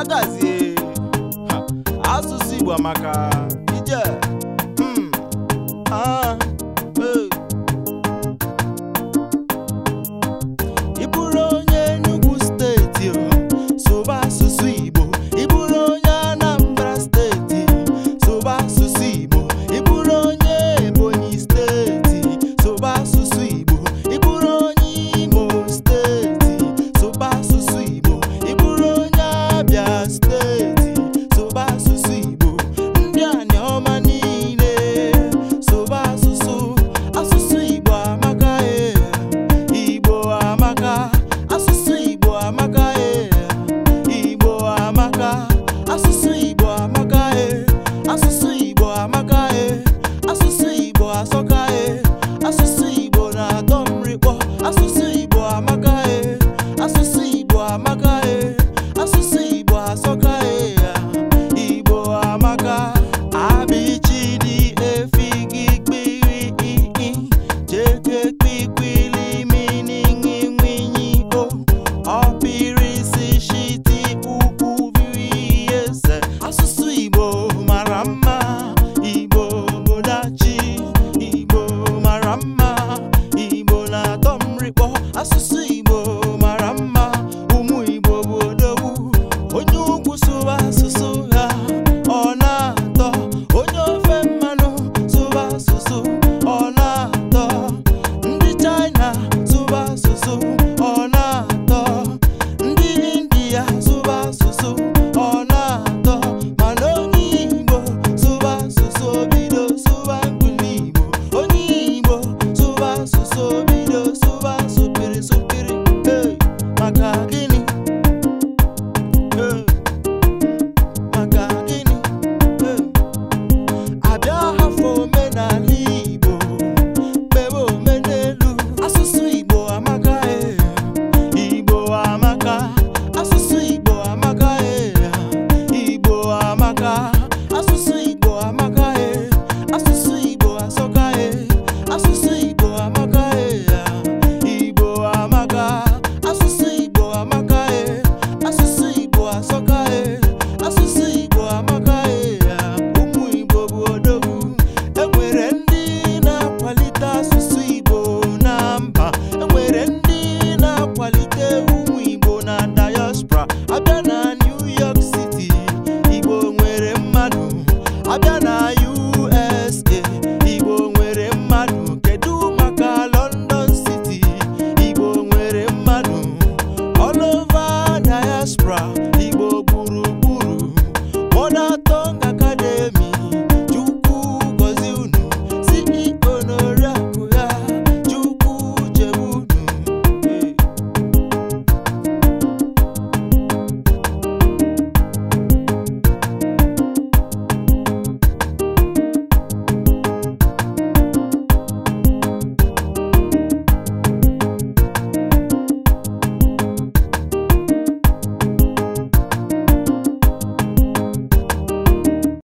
agazie asụsụ Igbo amaka asụsụ igbo mara mma ụmụ igbo bụ odogwu onye ugwu sụba asụsụ ha ọ na-atọ onye ofe mmanụ sụba asụsụ ọ na-atọ ndị China sụba asụsụ ọ na-atọ ndị India sụba asụsụ ọ na-atọ mana onye igbo sụba asụsụ bido sụba igbo onye igbo sụba asụsụ around.